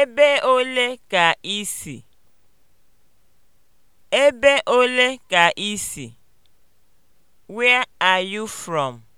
Ebe ole ka i si? Ebe ole ka i si? Where are you from?